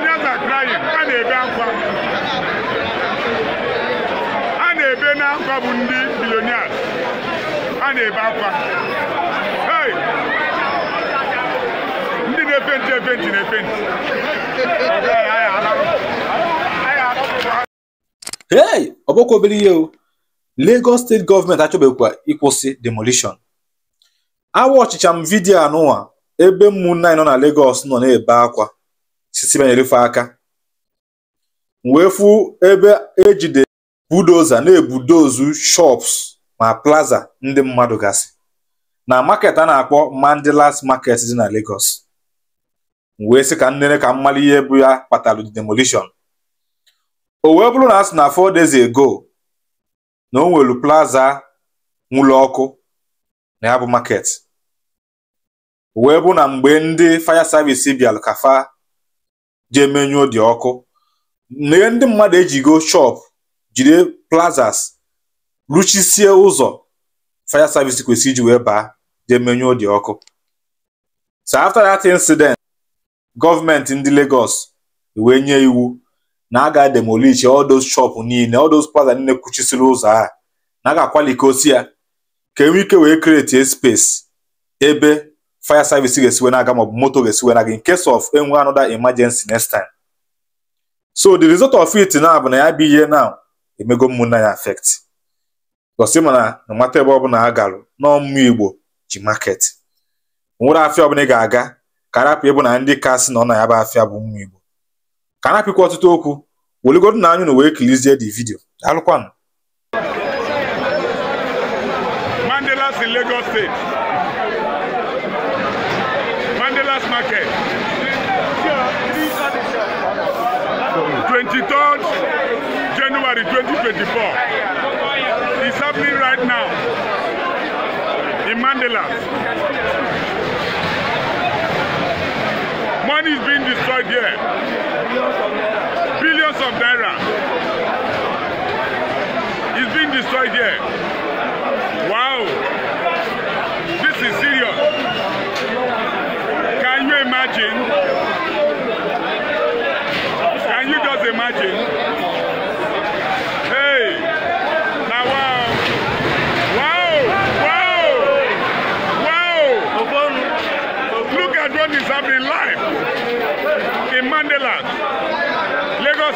Nigerians are a na-ebe akwa a na-ebe n'akwa bụ ndị billionaires a na-ebe akwa hey ndị na-epenti efe ntị na efe hey ọ bụkwa obere ihe o Lagos steeti gọọmenti achọbekwa ịkwụsị demolition awa ọchịcha m vidiyo anụwa ebe ụmụnne anyị nọ na Lagos nọ na-ebe akwa sisiba na-erufe aka wee fu ebe ejide budoza na-ebudozu shops ma plaza ndị mmadụ gasị na market a na-akpọ Mandilas market dị na Lagos wee sị ka nnere ka mmalị ihe bụ ya kpatara demolition o wee bụrụ na a sị na four days ago na o nwere plaza nwụrụ ọkụ na ya bụ market wee bụ na mgbe ndị fire service bịara ka fa jee menyụọ dị ọkụ neye ndị mmadụ ejigo shop jide plazas ruchisie ụzọ fire service kwesịrị iji wee baa jee menyụọ dị ọkụ so after that incident gọọmenti ndị Lagos wee nye iwu na a ga-demolish all those shop niile all those plaza niile kwuchisiri ụzọ a na a ga-akwalikosi ya ka enwe ike wee create space ebe fire service ga-esiwe na-aga maọbụ moto ga-esiwe na gị in case of enwe another emergency next time so the result of it now bụ na ya bụ ihe now emego mmụnna ya affect gosi mana na mata ebe ọbụla ha garụ n'ọmụ igbo ji market nwere afịa ọbụla ị ga-aga ka arapụ ịbụ na ndị kasị nọ na ya bụ afịa bụ mmụ igbo ka arapịkwa ọtụtụ okwu weligodo na anyị na wee kilizie the video alụkwanụ mandela si Lagos steeti. market. 23rd January 2024. It's happening right now in Mandela. Money is being destroyed here. Billions of naira. It's being destroyed here.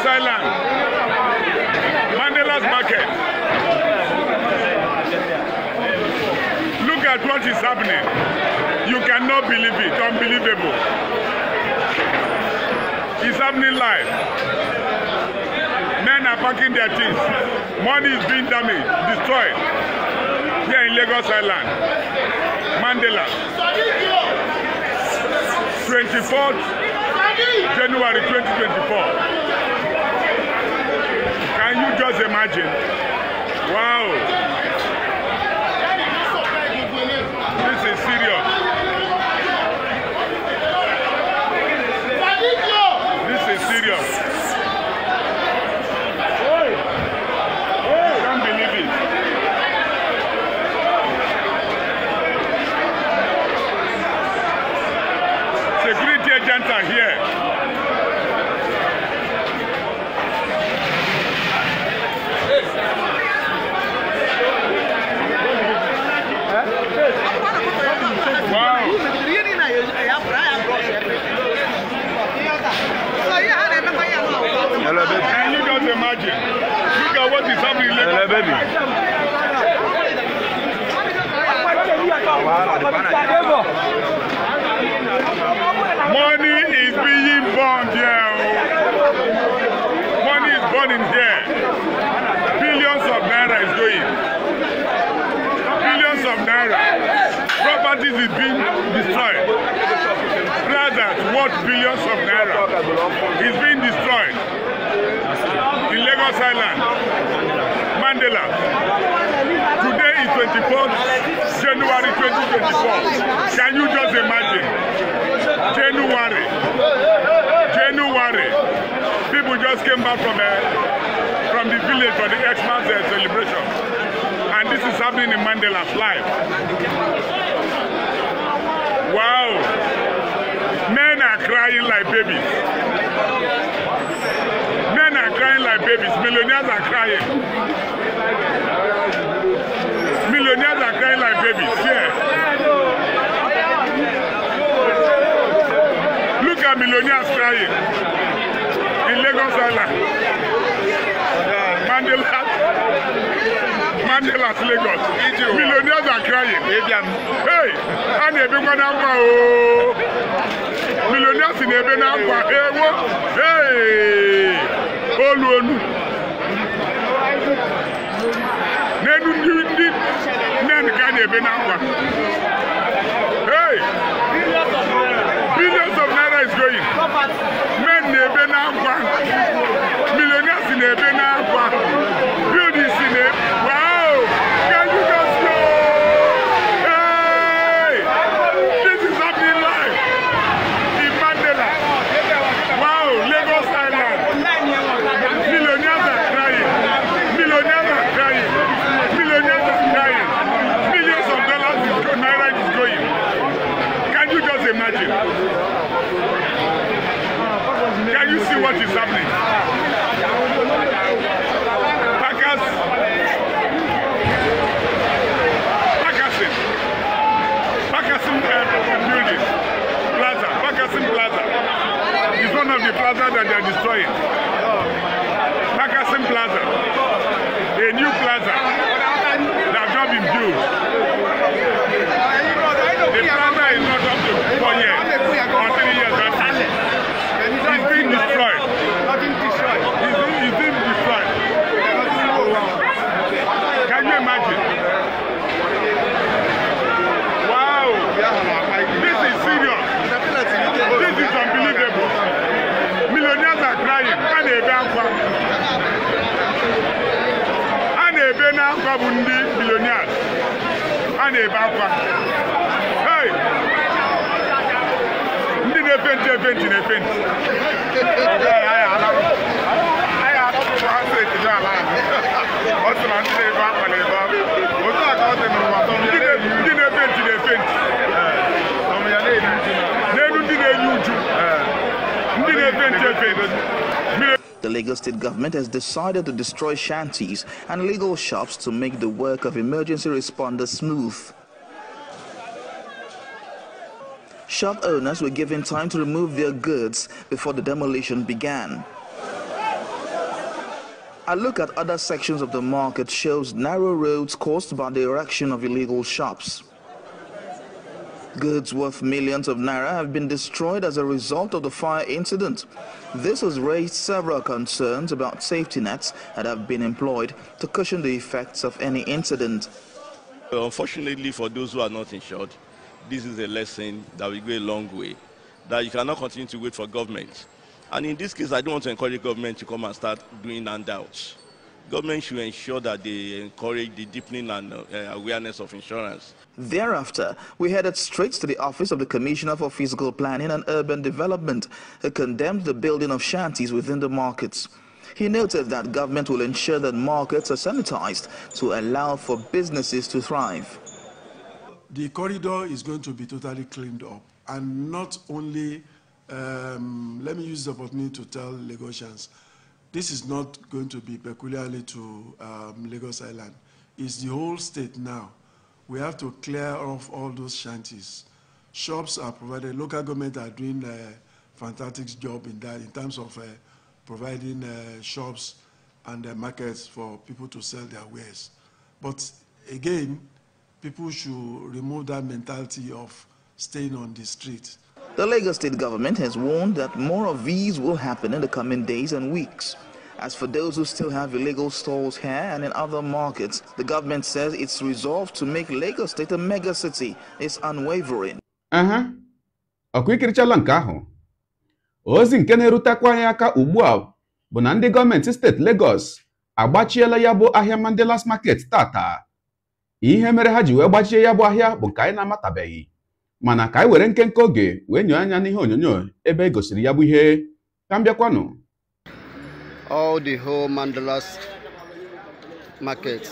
Island, Mandela's Market. Look at what is happening. You cannot believe it. Unbelievable. It's happening live. Men are packing their things. Money is being damaged, destroyed. Here in Lagos Island, Mandela. 24th January 2024. Can you just imagine? Wow. Money is being born here. Oh. Money is born in here. Billions of naira is going. Billions of naira. Properties is being destroyed. Rather, what billions of naira is being destroyed in Lagos Island, Mandela. 24th, January 2024. Can you just imagine? January. January. People just came back from the eh, from the village for the Xmas uh, celebration. And this is happening in Mandela's life. Wow. Men are crying like babies. Men are crying like babies. Millionaires are crying. babies here. Look at millionaires crying in Lagos Island. Mandela. Mandela's Lagos. Millionaires are crying. Hey, and everyone now. Millionaires in every now. Hey, what? Hey, Oluolu. Nedu na-ebe na nkwa hey billions of naira is going men na-ebe na nkwa millionaires na-ebe na nkwa Canada, a are akwa bụ ndị bilionia a na-ebe akwa ndị na-epenti epenti na-epenti ọ sị ndị na-ebe akwa Lagos state government has decided to destroy shanties and legal shops to make the work of emergency responders smooth. Shop owners were given time to remove their goods before the demolition began. A look at other sections of the market shows narrow roads caused by the erection of illegal shops. Goods worth millions of naira have been destroyed as a result of the fire incident. This has raised several concerns about safety nets that have been employed to cushion the effects of any incident. Unfortunately for those who are not insured, this is a lesson that will go a long way, that you cannot continue to wait for government. And in this case, I don't want to encourage government to come and start doing handouts. Government should ensure that they encourage the deepening and uh, awareness of insurance. Thereafter, we headed straight to the office of the Commissioner for Physical Planning and Urban Development, who condemned the building of shanties within the markets. He noted that government will ensure that markets are sanitized to allow for businesses to thrive. The corridor is going to be totally cleaned up and not only, um, let me use the opportunity to tell Lagosians, this is not going to be peculiarly to um, Lagos Island. It's the whole state now. We have to clear off all those shanties. Shops are provided. Local government are doing a fantastic job in that in terms of uh, providing uh, shops and uh, markets for people to sell their wares. But again, people should remove that mentality of staying on the street. The Lagos state government has warned that more of these will happen in the coming days and weeks. As for those who still have illegal stalls here and in other markets, the government says its resolve to make Lagos state a megacity is unwavering. Uh-huh. ọkụikirichala nke ahụ ozi nke na-erutekwa anyị aka ugbu a bụ na ndị gọọmenti steeti Lagos agbachiela ya bụ ahịa Mandela's Market tata ihe mere ha ji wee gbachie ya bụ ahịa bụ nke anyị na-amatabeghị mana ka anyị e were nkenke oge wee nyoo anya n'ihe onyonyo ebe e gosiri ya bụ ihe ka m bịakwanụ all the whole mandalas market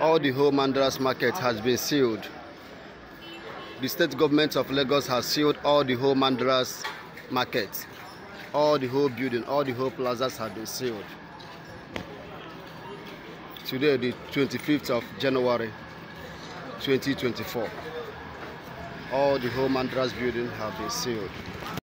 all the whole mandalas market has been sealed the state government of lagos has sealed all the whole mandalas market all the whole building all the whole plazas have been sealed today the 25th of january 2024 all the home and buildings have been sealed.